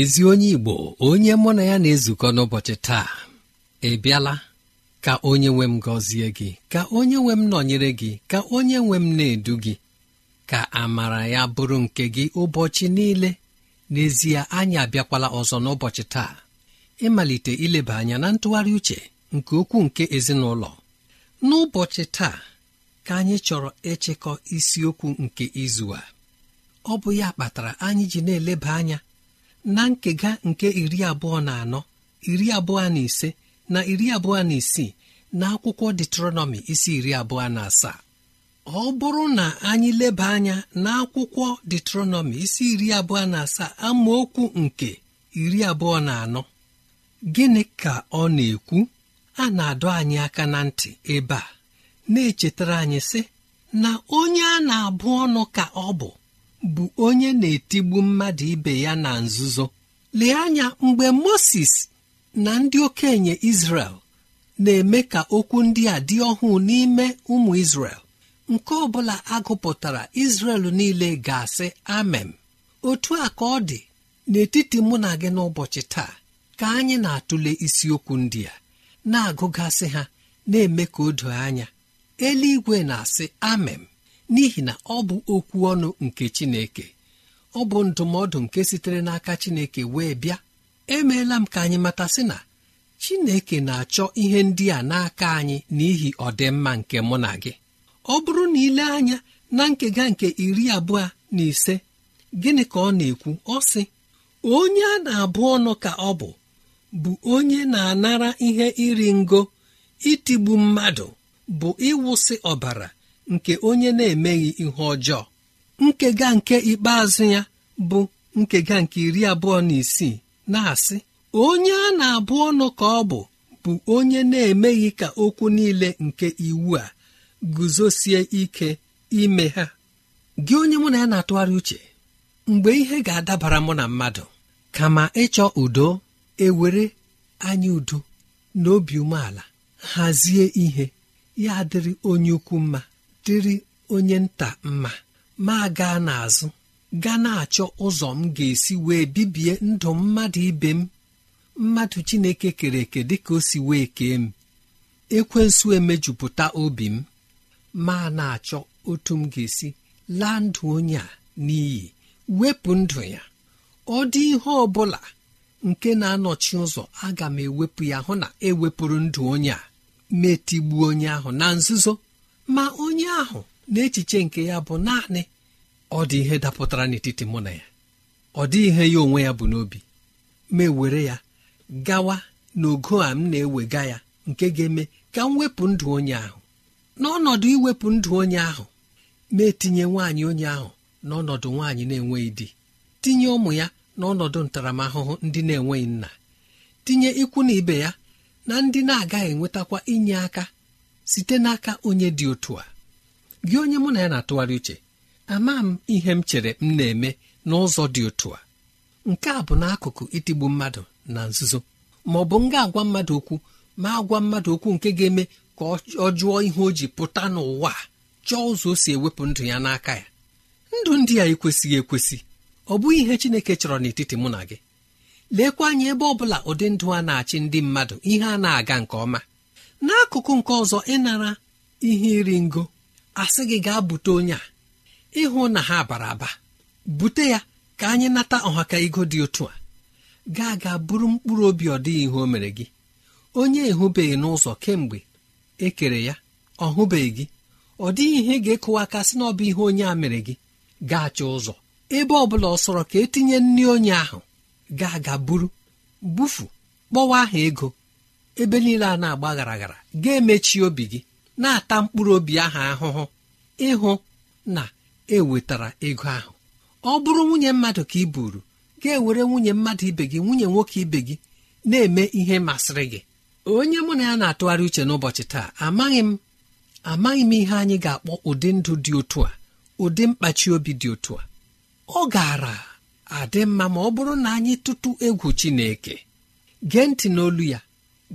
ezi onye igbo onye mụ na ya na-ezukọ n'ụbọchị taa ị bịala ka onye nwe m gọzie gị ka onye nwe m nọnyere gị ka onye nwe m na-edu gị ka amara ya bụrụ nke gị ụbọchị niile n'ezie anyị abịakwala ọzọ n'ụbọchị taa ịmalite ileba anya na ntụgharị uche nke okwu nke ezinụlọ n'ụbọchị taa ka anyị chọrọ ịchịkọ isiokwu nke izu a ọ bụ ya kpatara anyị ji na-eleba anya na nkega nke iri abụọ na anọ iri abụọ na ise na iri abụọ na isii na akwụkwọ detronọmi isi iri abụọ na asaa ọ bụrụ na anyị leba anya na akwụkwọ detronọmi isi iri abụọ na asaa amaokwu nke iri abụọ na anọ gịnị ka ọ na-ekwu a na-adọ anyị aka na ntị ebe a na-echetara anyị sị na onye a na-abụ ọnụ ka ọ bụ bụ onye na-etigbu mmadụ ibe ya na nzuzo lee anya mgbe moses na ndị okenye Izrel na-eme ka okwu ndị a dị ọhụụ n'ime ụmụ Izrel nke ọbụla agụpụtara Izrel niile ga-asị amem otu a ka ọ dị n'etiti mụ na gị n'ụbọchị taa ka anyị na-atụle isiokwu ndị a na-agụgasị ha na-eme ka o doo anya eluigwe na-asị amem n'ihi na ọ bụ okwu ọnụ nke chineke ọ bụ ndụmọdụ nke sitere n'aka chineke wee bịa emeela m ka anyị matasị na chineke na-achọ ihe ndị a n'aka anyị n'ihi ọdịmma nke mụ na gị ọ bụrụ na ile anya na nkega nke iri abụọ na ise gịnị ka ọ na-ekwu ọ sị onye a na-abụ ọnụ ka ọ bụ bụ onye na-anara ihe iri ngo itigbu mmadụ bụ ịwụsị ọbara nke onye na-emeghị ihe ọjọọ nkega nke ikpeazụ ya bụ nkega nke iri abụọ na isii na-asị onye a na-abụ ọnụ ka ọ bụ bụ onye na-emeghị ka okwu niile nke iwu a guzosie ike ime ha gị onye mụ na ya na-atụgharị uche mgbe ihe ga-adabara mụ na mmadụ kama ịchọ udo ewere anya udo na obi umeala hazie ihe ya dịrị onye ukwu mma dịrị onye nta mma ma gaa n'azụ gaa na-achọ ụzọ m ga-esi wee bibie ndụ mmadụ ibe m mmadụ Chineke kere eke dịka o si wee kee m ekwensu emejupụta obi m ma na-achọ otu m ga-esi laa ndụ onye a n'iyi wepụ ndụ ya ọ dị ihe ọ bụla nke na-anọchi ụzọ aga m ewepụ ya hụ na ewepụrụ ndụ onye a metigbuo onye ahụ na nzuzo ma onye ahụ na echiche nke ya bụ naanị ọ dị ihe dapụtara n'etiti mụ na ya ọ dị ihe ya onwe ya bụ n'obi ma ewere ya gawa n'ogo a m na-ewega ya nke ga-eme ka m wepụ ndụ onye ahụ n'ọnọdụ iwepụ ndụ onye ahụ ma etinye nwaanyị onye ahụ n'ọnọdụ nwaanyị na-enweghị di tinye ụmụ ya n'ọnọdụ ntaramahụhụ ndị na-enweghị nna tinye ikwu na ibe ya na ndị na-agaghị enwetakwa inye aka site n'aka onye dị otu a gị onye mụ na ya na-atụgharị uche ama m ihe m chere m na-eme n'ụzọ dị otu a nke a bụ n'akụkụ itigbu mmadụ na nzuzo ma ọ bụ m ga-agwa mmadụ okwu ma agwa mmadụ okwu nke ga-eme ka ọ jụọ ihe o ji pụta n'ụwa chọọ ụzọ o si ewepụ ndụ ya n'aka ya ndụ ndị a ekwesịghị ekwesị ọ bụghị ihe Chineke chọrọ n'etiti mụ na gị lekwa anya ebe ọ bụla ụdị ndụ a na-achị ndị mmadụ ihe a na-aga nke ọma n'akụkụ nke ọzọ ịnara ihe iri ngo asị gị gaa bute onye a ịhụ na ha bara aba bute ya ka anyị nata ọhaka ego dị otu a gaa gaa bụrụ mkpụrụ obi ọ dịghị ihe o mere gị onye ehụbeghị n'ụzọ kemgbe e kere ya ọ hụbeghị gị ọ dịghị ihe ga-ekụwa aka sị na ọ bụ ihe onye a mere gị gaa chọọ ụzọ ebe ọ bụla ọ sọrọ ka etinye nri onye ahụ gaa gaa buru bufu kpọwa aha ego ebe niile a na-agba garaghara ga-emechi obi gị na-ata mkpụrụ obi ahụ ahụhụ ịhụ na ewetara ego ahụ ọ bụrụ nwunye mmadụ ka ị buru ga-ewere nwunye mmadụ ibe gị nwunye nwoke ibe gị na-eme ihe masịrị gị onye mụ na ya na-atụgharị uche n'ụbọchị taa amaghị m amaghị m ihe anyị ga-akpọ ụdị ndụ dị otu a ụdị mkpachi obi dị otu a ọ gaara adị mma ma ọ bụrụ na anyị tụtụ egwu Chineke gee ntị n'olu ya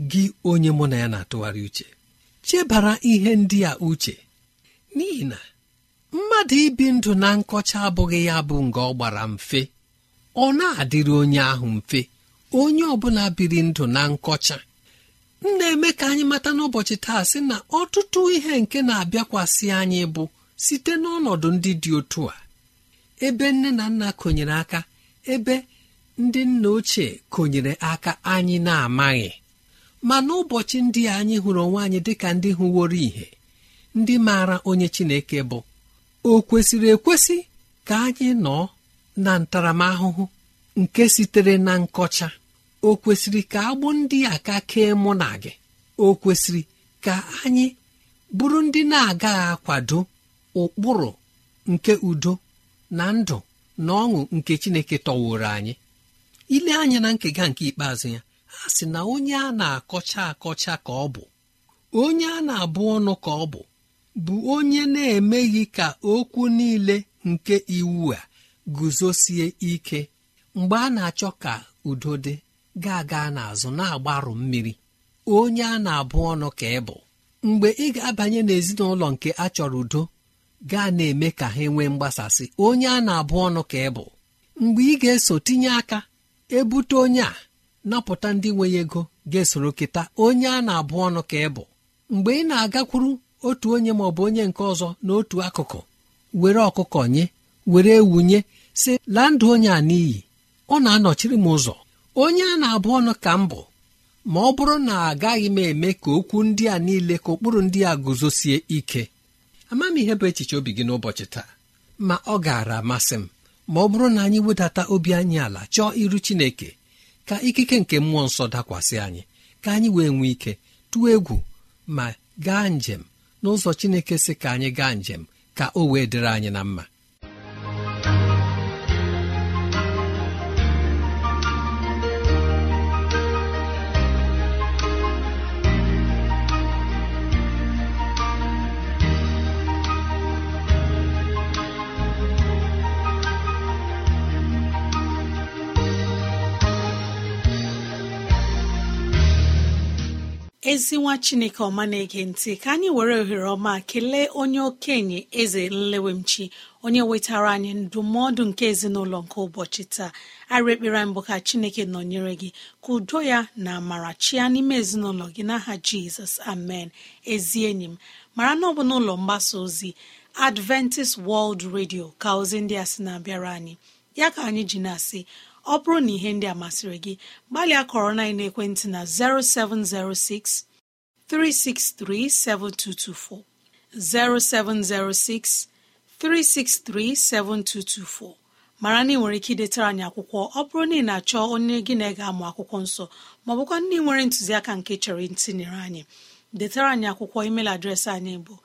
gị onye mụ na ya na-atụgharị uche chebara ihe ndị a uche n'ihi na mmadụ ibi ndụ na nkọcha abụghị ya bụ nga ọ gbara mfe ọ na-adịrị onye ahụ mfe onye ọbụla biri ndụ na nkọcha m na-eme ka anyị mata n'ụbọchị taa sị na ọtụtụ ihe nke na-abịakwasị anyị bụ site n'ọnọdụ ndị dị otu a ebe nne na nna konyere aka ebe ndị nna ochie konyere aka anyị na-amaghị ma n'ụbọchị ndị anyị hụrụ onwe anyị dịka ndị hụworo ihe ndị maara onye chineke bụ o kwesịrị ekwesị ka anyị nọ na ntaramahụhụ nke sitere na nkọcha o kwesịrị ka agbụ ndị aka ka kee mụ na gị o kwesịrị ka anyị bụrụ ndị na-agaghị akwado ụkpụrụ nke udo na ndụ na ọṅụ nke chineke tọworo anyị ile anya na nkega nke ikpeazụ ya sị na onye a na-akọcha akọcha ka ọ bụ onye a na-abụ ọnụ ka ọ bụ bụ onye na-emeghị ka okwu niile nke iwu a guzosie ike mgbe a na-achọ ka udo dị ga-aga n'azụ na-agbarụ mmiri onye a na-abụ ọnụ ka ị bụ mgbe ị ga-abanye n'ezinụlọ nke a chọrọ udo gaa na-eme ka ha nwee mgbasasị onye a na-abụ ọnụ ka ị bụ mgbe ị ga-eso tinye aka ebute onye a napụta ndị nweghị ego ga-esoro keta onye a na-abụ ọnụ ka ị bụ mgbe ị na-agakwuru otu onye ma ọ bụ onye nke ọzọ n'otu akụkụ were ọkụkọ nye were wunye si laa ndụ onye a n'iyi ọ na-anọchiri m ụzọ onye a na-abụ ọnụ ka m bụ ma ọ bụrụ na agaghị m eme ka okwu ndị a niile ka ụkpụrụ ndị a guzosie ike ama m ihe bụ echiche obi gị n'ụbọchị taa ma ọ gaara amasị m ma ọ bụrụ na anyị wedata obi anyị ala chọọ iru Chineke ka ikike nke mmụọ nsọ dakwasị anyị ka anyị wee nwee ike tụọ egwu ma gaa njem n'ụzọ chineke si ka anyị gaa njem ka o wee dịrị anyị na mma ezi nwa chineke ọma na-ege ntị ka anyị were ohere ọma kelee onye okenye eze nlewemchi onye wetara anyị ndụmọdụ nke ezinụlọ nke ụbọchị taa arị ekpere mbụ ka chineke nọnyere gị ka udo ya na amara chia n'ime ezinụlọ gị n'aha jizọs amen ezi enyi m mara na ọ bụ n'ụlọ mgbasa ozi adventist world radio ka ozi ndị a sị na-abịara anyị ya ka anyị ji na-asị ọ bụrụ na ihe ndị a masịrị gị gbalịa kọrọ na ekwentị na 0706 363 7224 0706 363 7224 mara na ị nwere ike idetara anyị akwụkwọ ọ bụrụ na ị na-achọ onye gị na ga amụ akwụkwọ nsọ maọbụkwa ndị nwere ntụziaka nke chọrọ ntinyere anyị detara anyị akwụkwọ email adreesị anyị bụ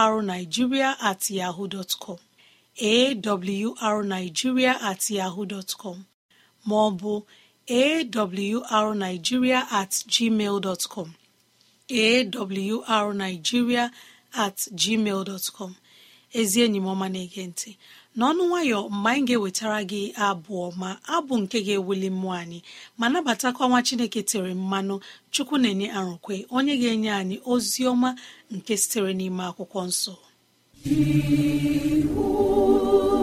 awrnigeria at yahoo awrnigeria at yahoo dọtkọm maọbụ awrnigeria at gmail awrnigeria at gmail dọtkọm ezi enyi m na-ege ntị n'ọnụ nwayọ mgbe anyị ga-ewetara gị abụ ọma abụ nke ga-ewuli mmụọ anyị ma nabatakwa nwa chineke tere mmanụ chukwu na-enye arụkwe onye ga-enye anyị ozi ọma nke sitere n'ime akwụkwọ nsọ He who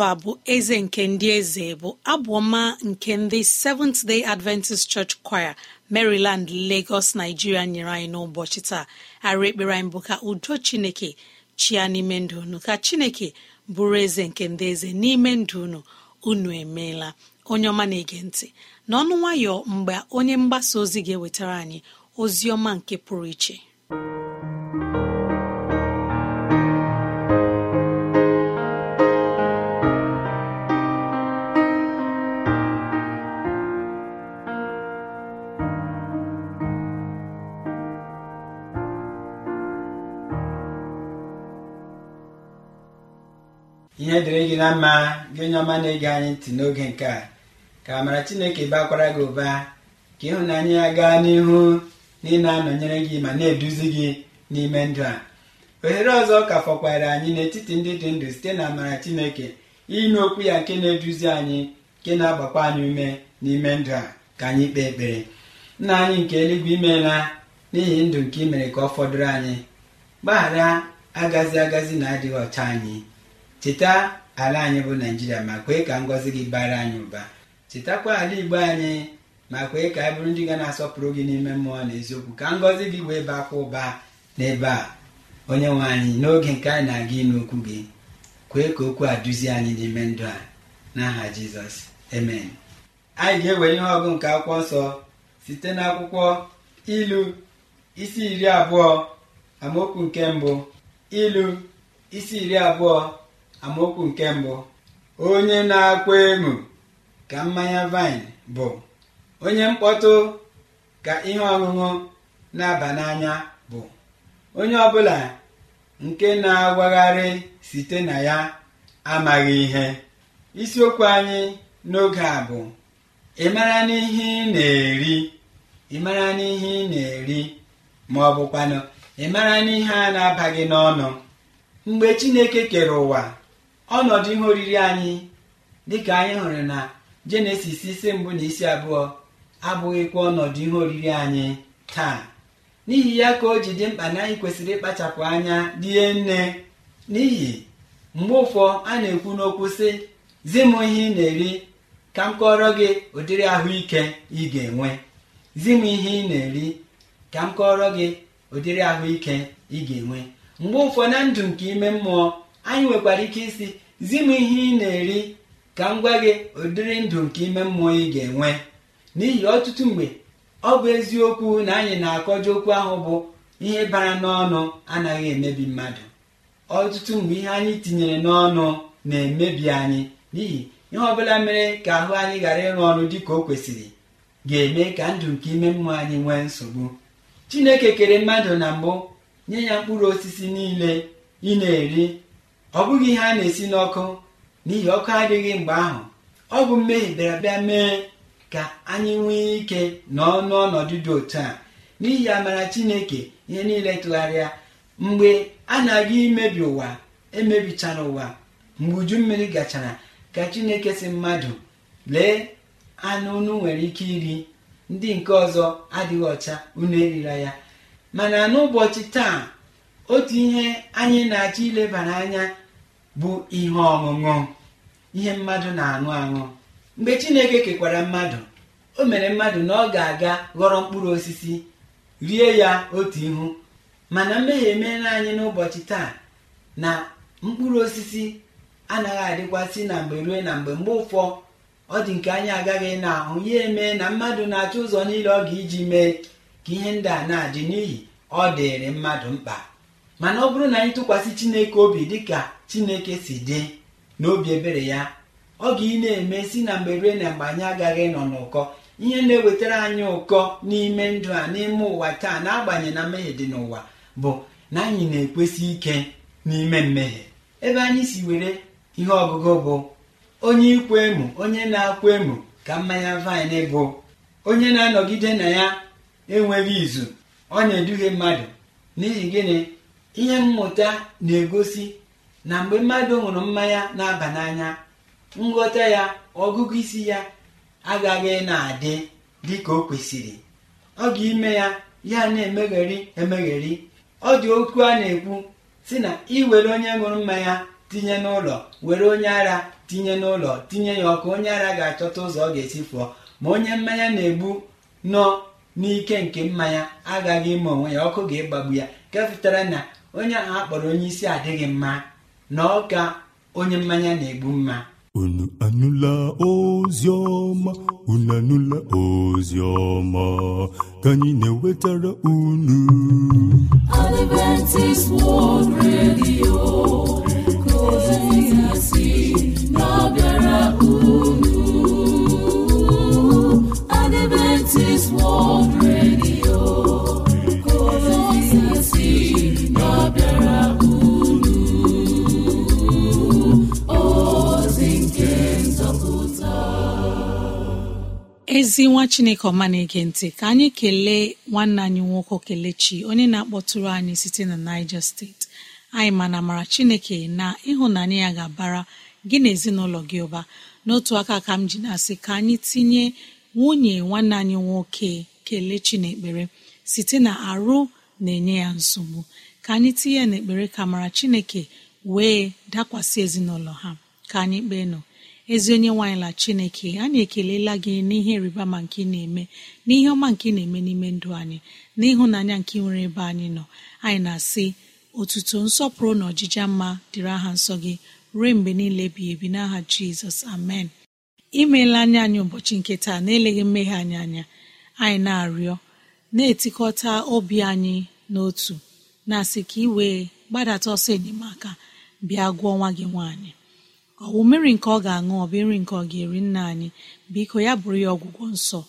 jehova bụ eze nke ndị eze bụ abụọma nke ndị seventh day adventist church choir maryland lagos nigeria nyere anyị n'ụbọchị taa ara ekpere anyị bụ ka udo chineke chia n'ime ndụ unu ka chineke bụrụ eze nke ndị eze n'ime ndụ unu unu emeela onye ọma na-ege ntị n'ọnụ nwayọ mgbe onye mgbasa ozi ga-ewetara anyị ozi ọma nke pụrụ iche gị na mma gị onye ọma na-ege anyị ntị n'oge nke a ka amara chineke bakwara gị ụba ka ịhụnanya ya gaa n'ihu na ị na-anọnyere gị ma na-eduzi gị n'ime ndụ a ohere ọzọ ka fọkwara anyị n'etiti ndị dị ndụ site na amara chineke inye okwu ya nke na-eduzi anyị nke na-agbakwa anyị ume n'ime ndụ a ka anyị kpee ekpere nna anyị nke eluigwe imeela n'ihi ndụ nke imere mere ka ọ fọdụrụ anyị gbaghara agazi agazi na adịghị ọcha anyị cheta ala anyị bụ naijiria ma kwee ka ngọzi gị bara anyị ụba chetakwa ala igbo anyị ma kwee ka anyị bụrụ ndị ga na-asọpụrụ gị n'ime mmụọ na eziokwu ka ngọzi gị wee bakwa ụba n'ebe a onye nwe anyị n'oge nke anyị na-aga ịnụ okwu gị kwee ka okwu a duzie anyị n'ime ndụ a n'aha jizọs amen anyị ga-ewere ihe ọgụ nke akwụkwọ nsọ site n'akwụkwọ ilu isi iri abụọ amaokwu nke mbụ ilu isi iri abụọ amaokwu nke mbụ onye na-akwa emu ka mmanya vine bụ onye mkpọtụ ka ihe ọṅụṅụ na-aba n'anya bụ onye ọbụla nke na agwagharị site na ya amaghị ihe isiokwu anyị n'oge a bụ ị mara n'ihe ị na-eri ị mara n'ihe ị na-eri ma ọ bụkwanụ ị mara n'ihe a na-abaghị n'ọnụ mgbe Chineke kere ụwa ọnọdụ ihe oriri anyị dịka anyị hụrụ na jenesis isi mbụ na isi abụọ abụghịkwa ọnọdụ ihe oriri anyị taa n'ihi ya ka o ji dị mkpa na anyị kwesịrị ịkpachapụ anya die nne n'ihi mgbe ụfọ a na-ekwu n'okwu sị zi ihe ị na-eri ka m kọrọ gị ụdịrị zi m ihe ị na-eri ka m kọọrọ gị ụdịrị ahụike ị ga-enwe mgbe ụfọ na ndụ nke ime mmụọ anyị nwekwara ike isi zi m ihe ị na-eri ka m gwa gị ụdịrị ndụ nke ime mmụọ ị ga-enwe n'ihi ọtụtụ mgbe ọ bụ eziokwu na anyị na-akọje okwu ahụ bụ ihe bara n'ọnụ anaghị emebi mmadụ ọtụtụ mgbe ihe anyị tinyere n'ọnụ na-emebi anyị n'ihi ihe ọbụla mere ka ahụ anyị ghara ịrụ ọrụ dị ka o kwesịrị ga-eme ka ndụ nke ime mmụọ anyị nwee nsogbu chineke kere mmadụ na mbụ nye ya mkpụrụ osisi niile ị na-eri ọ bụghị ihe a na-esi n'ọkụ n'ihi ọkụ adịghị mgbe ahụ ọ bụ mmehie bịara bịa mee ka anyị nwee ike nọọ n'ọnọdụ dị otu a n'ihi amara chineke ihe niile tụgharịa mgbe a na-aga imebi ụwa emebichara ụwa mgbe uju mmiri gachara ka chineke si mmadụ lee anụ unu nwere ike iri ndị nke ọzọ adịghị ọcha unu erila ya mana n'ụbọchị taa otu ihe anyị na-achọ ilebara anya bụ ihe ọṅụṅụ ihe mmadụ na-aṅụ aṅụ mgbe chineke kekwara mmadụ o mere mmadụ na ọ ga-aga ghọrọ mkpụrụ osisi rie ya otu ihu mana mmehie emeela anyị n'ụbọchị taa na mkpụrụ osisi anaghị adịkwasị na mgbe rue na mgbe mgbe ụfọ ọ dị nke anyị agaghị na ahụ ya eme na mmadụ na-achọ ụzọ niile ọ ga iji mee ka ihe ndị a na-adị n'ihi ọ dịrị mmadụ mkpa mana ọ bụrụ na anyị tụkwasị chineke obi dịka chineke si dị n'obi ebere ya ọ ga ị na-eme si na mgbe rue na mgbe anyị agaghị nọ n'ụkọ ihe na-ewetara anyị ụkọ n'ime ndụ a n'ime ụwa taa na-agbanye na mmehie dị n'ụwa bụ na anyị na-ekwesị ike n'ime mmehie ebe anyị si were ihe ọgụgụ bụ onye ikwe emu onye na-akwa emu ka mmanya vaịn bụ onye na-anọgide na ya enweghị izu ọ na-eduhie mmadụ n'ihi gịnị ihe mmụta na-egosi na mgbe mmadụ ṅụrụ mmanya na-aba n'anya nghọta ya ọgụgụ isi ya agaghị na-adị dị ka o kwesịrị ọ ga-ime ya ya na-emegheri emegheri ọ dị okwu a na-ekwu si na iwere onye ṅụrụ mmanya tinye n'ụlọ were onye ara tinye n'ụlọ tinye ya ọkụ onye ara ga-achọta ụzọ ọ ga-esi fụọ ma onye mmanya na-egbu nọ n'ike nke mmanya agaghị ime onwe ya ọkụ ga-egbagbu ya nke pụtara na onye ahụ akpọrọ onye isi adịghị mma na ọ ga onye mmanya na-egbu mma unu anụla ozi ọma unu anụla ozi ọma ka anyị na-ewetara unu Adventist World Radio ka ozi si na-abịara unu Adventist World Radio ezi nwa chineke ọma na-ege ntị ka anyị kelee nwanne anyị nwoke kelechi onye na-akpọtụrụ anyị site na niger steeti anyị ma na chineke na ịhụnanya ya ga-abara gị na ezinụlọ gị ụba n'otu aka ka m ji na-asị ka anyị tinye nwunye nwanne anyị nwoke kelechi n'ekpere site na arụ na-enye ya nsogbu ka anyị tinye n'ekpere ka mara chineke wee dakwasị ezinụlọ ha ka anyị kpee nọ ezi onye nwaanyị la chineke anyị ekelela gị n'ihe ịrịba ma nke ị na-eme n'ihe ọma nke ị na-eme n'ime ndụ anyị n'ịhụnanya nke nwere ebe anyị nọ anyị na-asị otuto nsọpụrụ na ọjịja mma dịrị aha nsọ gị ruo mgbe niile bi ebi n'aha jizọs amen imeela anyị anyị ụbọchị nke taa na-eleghị mmeghe anyị anya anyị na-arịọ na-etikọta obi anyị n'otu na-asị ka ị wee gbadata ọsọ enyemaka bịa gụọ nwa gị nwaanyị ọ mmiri nke ọ ga-aṅụ ọ bụ nri nke ọ ga-eri nna anyị biko ya bụrụ ya ọgwụgwọ nsọ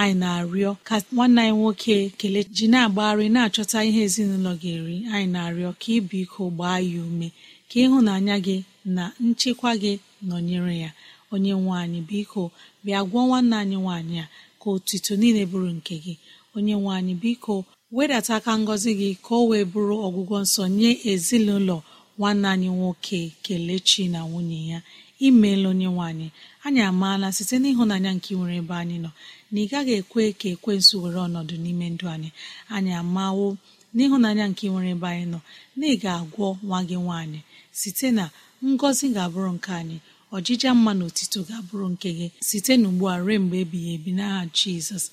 anyị na-arịọ ka nwanne anyị nwoke kelechi ji na-agbagharị na-achọta ihe ezinụlọ ga-eri anyị na-arịọ ka ị iko gbaa ya ume ka ịhụnanya gị na nchekwa gị nọnyere ya onye nwe biko bịa gwọọ nwanne anyị nwaanyị a ka otito niile bụrụ nke gị onye nwe biko wedata aka ngọzi gị ka o wee bụrụ ọgwụgwọ nsọ nye ezinụlọ nwanne anyị nwoke kelechi na nwunye ya imeela onye nwanyị anyị amaala site n'ịhụnanya nke nwere ebe anyị nọ na ị gaghị ekwe ka ekwensu were ọnọdụ n'ime ndụ anyị anyị amawo n'ịhụnanya nke nwere ebe anyị nọ na ị ga-agwọ nwa gị nwaanyị site na ngọzi ga-abụrụ nke anyị ọjija mma na otito ga-abụrụ nke gị site n'ugbu a ruo mgbe ebighị ebi n'aha jizọs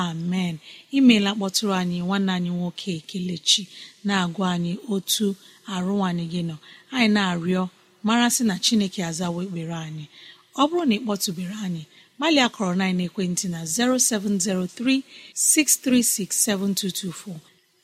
amen imeela kpọtụrụ anyị nwanne anyị nwoke kelechi na-agwa anyị otu arụ anyị gị nọ anyị na-arịọ mara sị na chineke azawa ekpere anyị ọ bụrụ na ị kpọtụbere anyị gbalịa kọrọ na ekwentị na 0706 363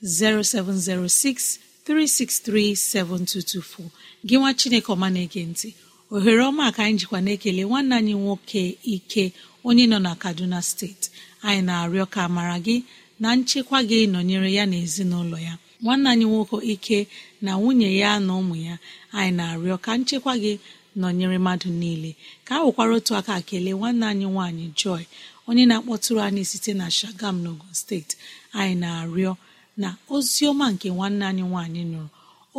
0706 363 7224 gị nwa chineke ọma na-ege ntị ohere ọma ka anyị jikwa na-ekele nwanne anyị nwoke ike onye nọ na kaduna steeti anyị na-arịọ ka mara gị na nchekwa gị nọnyere ya na ezinụlọ ya nwanne anyị nwoke ike na nwunye ya na ụmụ ya anyị na-arịọ ka nchekwa gị nọnyere mmadụ niile ka a nwekwara otu aka kelee nwanne anyị nwaanyị Joy onye na-akpọtụrụ anyị site na Shagam n'Ogun steeti anyị na-arịọ na ozi ọma nke nwanne anyị nwaanyị nụrụ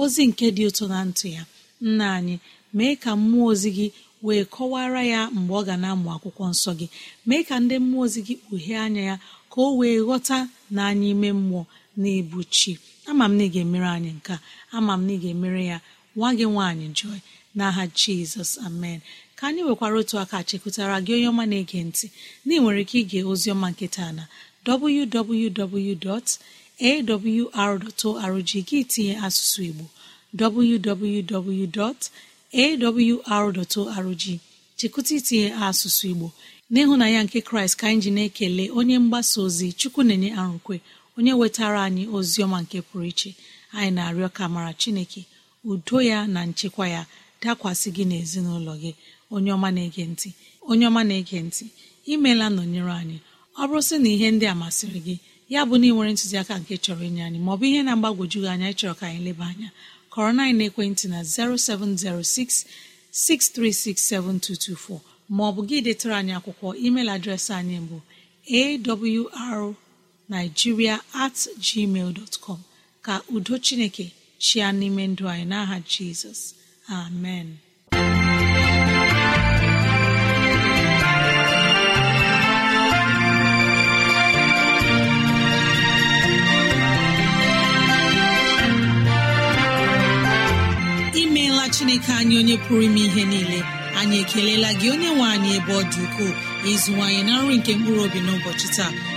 ozi nke dị ụtọ na ntụ ya nna anyị mee ka mmụọ ozi gị wee kọwara ya mgbe ọ ga na-amụ akwụkwọ nsọ gị mee ka ndị mmụọ ozi gị kpughee anya ya ka o wee ghọta na anyị ime mmụọ na-ebu chi ama m na ị ga-emere anyị nke ama m na ị ga-emere ya nwa gị nwaanyị joy n'aha jizọs amen ka anyị nwekwara otu aka chekụtara gị onye ọma na-ege ntị na ị nwere ike ige oziọma nketa na www.awr.org gị tinye asụsụ igbo www.awr.org chekụta itinye asụsụ igbo n'ịhụnanya nke kraịst ka anyị ji na-ekele onye mgbasa ozi chukwu na-enye arụkwe onye wetara anyị ozi ọma nke pụrụ iche anyị na-arịọ ka mara chineke udo ya na nchekwa ya dakwasị gị n'ezinụlọ gị onye ọma na-ege ntị onye ọma na-ege ntị imeela nọnyere anyị ọ bụrụ sị na ihe ndị a masịrị gị ya bụ na ị nwere ntụziaka nke chọrọ inye anyị maọbụ ihe na-agbagwoju gị anya ịchọrọ ka anyị leba anya kọrọ na ekwentị na 0706 maọbụ gị detara anyị akwụkwọ email adreesị anyị bụ awr naijiria at gmail ka udo chineke chia n'ime ndụ anyị n'aha jizọs amen imeela chineke anyị onye pụrụ ime ihe niile anyị ekelela gị onye nwe anyị ebe ọ dị ukwuu ịzụwanyị na nri nke mkpụrụ obi n'ụbọchị taa